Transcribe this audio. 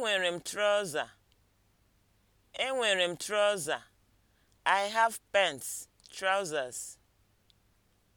Enwere m trọza. Enwere m trọza. I have pants, trousers.